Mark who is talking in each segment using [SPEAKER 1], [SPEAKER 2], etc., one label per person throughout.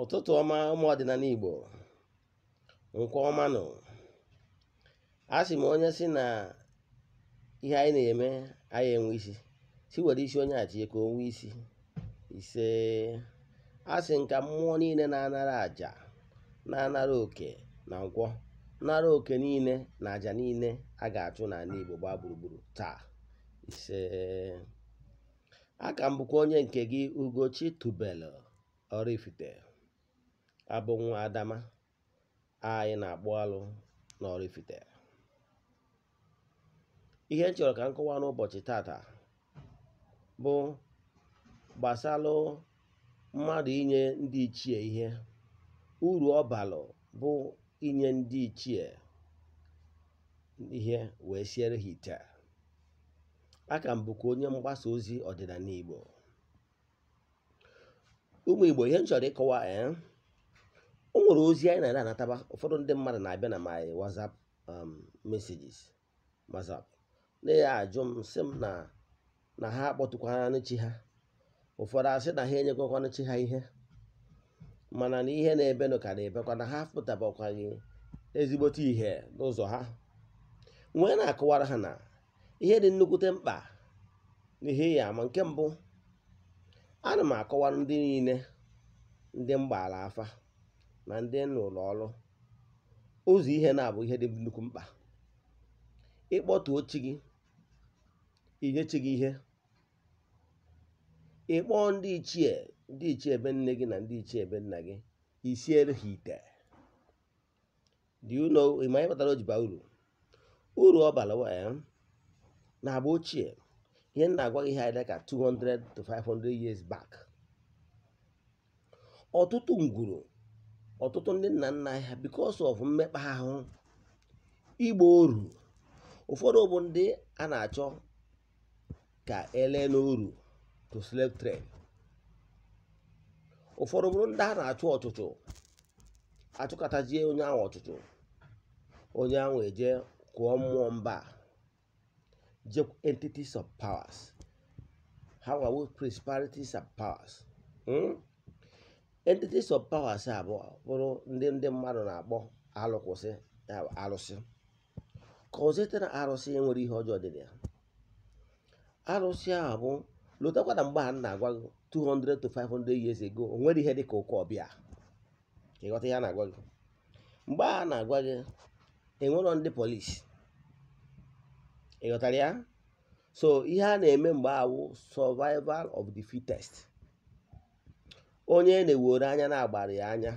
[SPEAKER 1] ụtụtụ ọma ụmụ ọdịnala Igbo nkwa ọma nọ a sị m onye si na ihe anyị na-eme anyị enwe isi si were isi onye achie ka onwe isi ise a sị nka mmụọ niile na-anara aja na-anara oke na nkwọ nara oke niile na aja niile a ga-achụ n'ala Igbo gbaa gburugburu taa ise aka m bụkwa onye nke gị Ugochi Tubelu Oraifite abụ nwa adama anyị na-akpụ alụ ifite ihe m chọrọ ka m kọwaa n'ụbọchị tata bụ gbasalụ mmadụ inye ndị ichie ihe uru ọ bụ inye ndị ichie ihe wee siere ha ite aka m bụkwa onye mgbasa ozi ọdịnala Igbo ụmụ Igbo ihe m chọrọ ịkọwa eh, o nwere ozi anyị na anataba ụfọdụ ndị mmadụ na-abịa na my whatsapp um, messages whatsapp na ya ajụ m sị m na na ha akpọtụkwanụ chi ha ụfọdụ asị na ha enyekọkwanụ chi ha ihe mana na ihe na-ebenụ ka na-ebekwa na ha pụtabakwaghị ezigbote ihe n'ụzọ ha nwee na-akọwara ha na ihe dị nnukwute mkpa n'ihe ya ama nke mbụ ana m akọwa ndị niile ndị mgbaala afa na ndị n'ụlọ ọrụ ụzọ ihe na-abụ ihe dị nnukwu mkpa ịkpọtuo chi gị inye chi gị ihe ịkpọ ndị ichie ndị ichie ebe nne gị na ndị ichie ebe nna gị isiere ha ite dị ụlọ ịma baa uru uru ọ bara na agba ochie ihe na-agwa gị ihe anyị dịka 200 to 500 years back ọtụtụ ngwuru ọtụtụ ndị nna nna ha because of mmekpa ahụ igbo oru ụfọdụ bụ ndị a na-achọ ka ele n'oru to slave trade ụfọdụ bụrụ ndị a na-achụ ọchụchụ achụkọtajie onye ahụ ọchụchụ onye ahụ eje kụọ mmụọ mba je entities of powers ha are we principalities of powers hmm? entities of powers abụọ bụrụ ndị ndị mmadụ na-akpọ alụkwụsị alụsị kọzite na arụsị nwere ihe ọjọọ dị na ya arụsị ahụ bụ lụtakwa na mgbe a na-agwa gị 200 to 500 years ago o nwere ihe dị ka ụkọ ọbịa ịghọta ihe a na-agwa gị mgbe a na-agwa gị enwerọ ndị polisi ịghọtara ya so ihe a na-eme mgbe awụ survival of the fittest onye e na-ewere anya na-agbara ya anya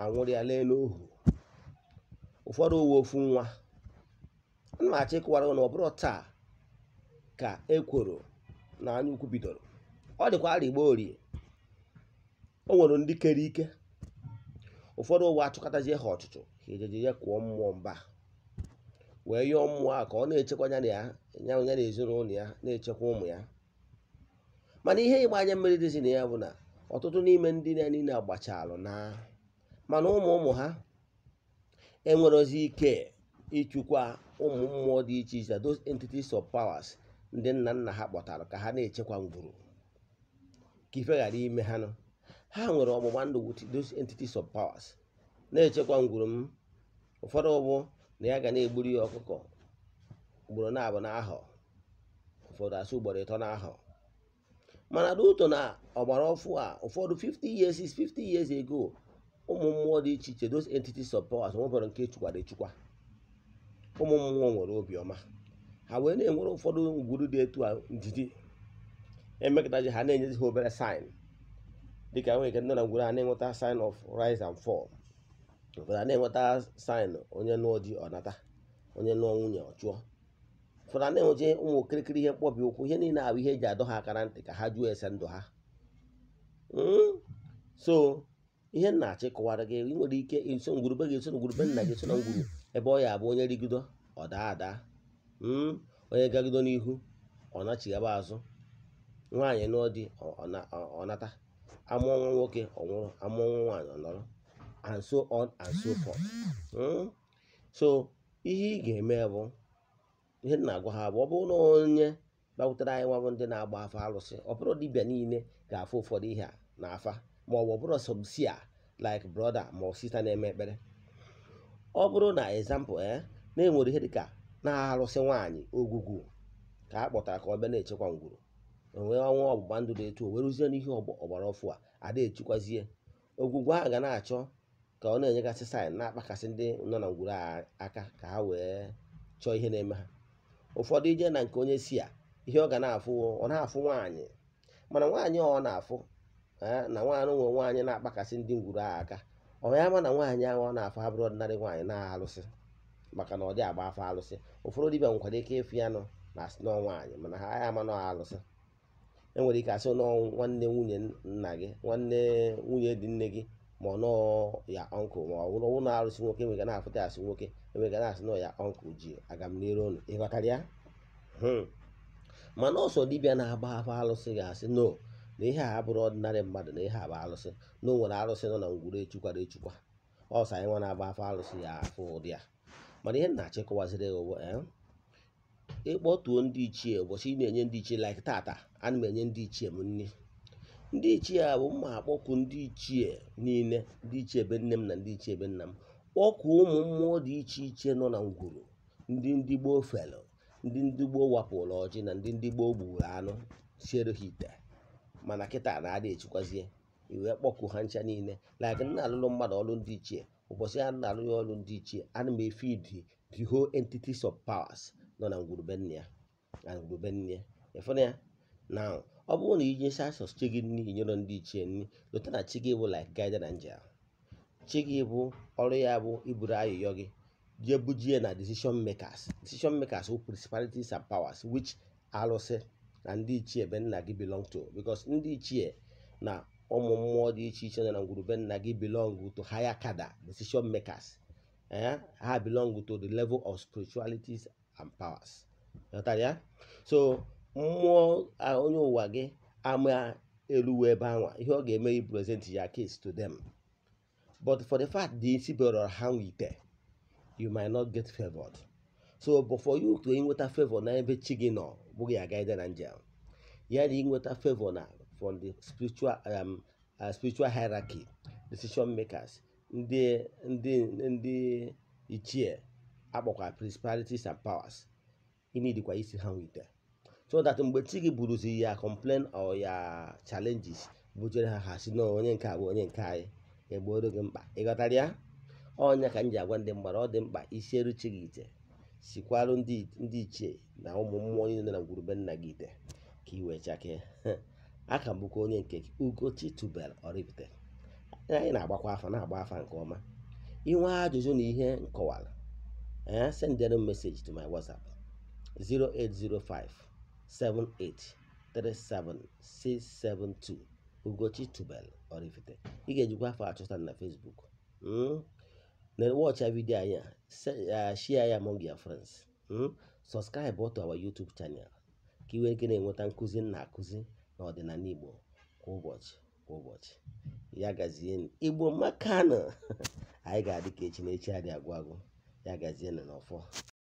[SPEAKER 1] anwụrịa lee n'ohu ụfọdụ uwe ofu nwa ana achị kụwara na ọ bụrụ taa ka ekworo na anyaukwu bidoro ọ dịkwa arịgba orie o nwere ndị kere ike ụfọdụ ụwa achụkọtazie ha ọchụchụ ha ya kụọ mmụọ mba wee yọọ mmụọ a ka ọ na-echekwa ya ya ya na ezinụlọ ya na-echekwa ụmụ ya mana ihe anya mmiri dịzi na ya bụ na ọtụtụ n'ime ndị na niile alụ na mana ụmụ ụmụ ha enwerozi ike ịchụkwa ụmụ mmụọ dị iche iche those entities of powers ndị nna nna ha kpọtara ka ha na-echekwa ngwuru ka ife ghara ime ha nọ ha nwere ọgbụgba ndụ with those entities of powers na-echekwa ngwuru m ụfọdụ ụbụ na ya ga na-egburu ya ọkụkọ ugboro na abụ ụfọdụ asụ ugboro ịtọ n'ahọ mana n'ụtọ na ọgbara ọfụ a ụfọdụ 50 years is 50 years ago ụmụ mmụọ dị iche iche those entities of powers nwebere nke chukwara echukwa ụmụ mmụọ nwere obiọma ha wee na-enwere ụfọdụ ngwuru dị etu a ndidi emekọtaji ha na-enyezi ha obere sin dịka nwere ike ndị na ngwuru ha na-enweta sin of rise and fall ụfọdụ ha na-enweta sign onye nụọ di ọnata onye nụọ nwunye ọchụọ fụra na-enweje ụmụ okirikiri ihe mkpọbi ụkwụ ihe niile abụ ihe eji adọ ha akara ntị ka ha juo ese ndụ ha hmm? so ihe nna achị kụwara gị ị nwere ike iso ngwurube gị eso ngwurube nna gị eso na ngwuru ebe ọ ya abụ onye rigido ọ daa ada hmm? onye gagido n'ihu ọ nachighaba azụ nwaanyị nụọ di ọ nata amụọ nwa nwoke ọ nwụrụ amụọ nwa nwaanyị ọ nọrọ and so on and so forth hmm? so ihe ị ga-eme bụ ihe na-agwa ha bụ ọ bụrụ na onye bakwutere anyị nwabụ ndị na-agba afa alụsị ọ bụrụ dibia niile ga-afụ ụfọdụ ihe a na afa ma ọ bụ ọ bụrụ a like brọda ma ọ sista na-eme ekpere ọ bụrụ na ezampụl e eh, na-enwere ihe dịka na-alụsị nwaanyị ogwugwu ka a kpọtara ka ọ bịa na-echekwa ngwuru onwe ọnwa ọgbụgba ndụ dị etu o weruzie n'ihe ọgbara ọfụ a ada echikwazie ogwugwu ahụ ga na-achọ ka ọ na-enyegasị saịn na-akpakasị ndị nọ na ngwuru aka ka ha wee chọọ ihe na-eme ha ụfọdụ ije na nke onye si a ihe ọ ga na-afụ ọ na-afụ nwaanyị mana nwaanyị ọ na-afụ na nwaanyị nwe nwaanyị na-akpakasị ndị ngwuru a aka ya ma na nwaanyị ahụ ọ na-afụ abụrụ ọdịnarị nwaanyị na-alụsị maka na ọ dị agba afọ alụsị ụfọdụ dibịa nwekwara ike ịfụ ya nọ na asị nọọ nwaanyị mana ha ya ama nọ alụsị enwere ike asị nọọ nwanne nwunye nna gị nwanne nwunye dị nne gị ma ọ nọọ ya ọnkụl ma ọ bụrụ ụlọ arụsị nwoke enwega na-afụta asị nwoke enwega na-asị nọ ya ọnkụl ji aga m n'ire ụnụ ịghọtara ya hmm. mana ọsọ dibịa na-agba afọ alụsị ga-asị no na ihe a abụrụ ọdịnarị mmadụ na ihe a bụ alụsị na o nwere alụsị nọ na ngwuru echukwara echukwa ọsọ anyị nwa na-agba afọ alụsị ya afụ ụdị ya mana ihe na-achịkọwaziri ụwa eh, ịkpọtuo ndị ichie ụbọchị ị na-enye ndị ichie like tata ana m enye ndị ichie m nri ndị ichie a bụ mma akpọku ndị ichie niile ndị ichie ebe nne m na ndị ichie ebe nna m kpọkụ ụmụ mmụọ dị iche iche nọ na ngwuru ndị ndị gboo felụ ndị ndị gboo wapụrụ ọjị na ndị ndị gboo gburu anụ siere ha ite mana kịta na-adị echikwazie iwe kpọku ha ncha niile like nna alụlụ mmadụ ọrụ ndị ichie ụbọchị a na-alụ ya ọrụ ndị ichie ana m efe idi the whole entities of powers nọ na ngwuru nne ya na ngwuru nne ya efena ya na. ọ bụrụ na iji sasọs chi gị n'ihi nyere ndị ichie nri lụta na chi gị bụ lik guide na angel chi gị bụ ọrụ ya bụ iburu ayụyọ gị jee bujie na decision makers decision makers wụ principalities and powers which alụsị na ndị ichie be nna gị belong to because ndị ichie na ụmụ mmụọ dị iche iche nọ na be nna gị belong to higher kada decision makers eh, ha belong to the level of spiritualities and powers. so mmụọ onye ụwa gị ama eluwe ebe anwa ihe ọ ga-eme i present ya case to them but for the fact na isi ha nwite you might not get favored so but for you to inweta favor na ebe chi gị nọ bụghị aga na njem ya na inweta favor na from the spiritual um, uh, spiritual hierarchy decision makers ndị ndị ndị ichie akpọkwa principalities and powers ị isi ha nwite so that mgbe chi gị buruzi ya complain or ya challenges bujere ha ha si na onye nke a bụ onye nke anyị egboro gị mkpa ịghọtara ya ọnya ka m ji agwa ndị mgbara ọ dị mkpa isieru chi gị ite sikwarụ ndị ichie na ụmụ mmụọ niile na ngwurube nna gị ite ka ị wee chakee aka bụkwa onye nke ugochi tubel oripụta anyị na-agbakwa afa na-agba afa nke ọma inwe ajụjụ na ihe nkọwara ya eh, sendere m meseji to my whatsapp 0805 78376372 Ugochi Tubelu Oraifite ị ga-ejikwa afọ achọta na Facebook hmm? na watcha vidio anyị a share ya among your friends hmm? subscribe to our YouTube channel ka iwe nwere ike na-enweta nkụzi na akụzi na ọdịnala Igbo kwa ụbọchị kwa ụbọchị ya gazie Igbo makanụ anyị ga-adị ka echi na echi adị agwụ agwụ ya gazie na n'ọfọ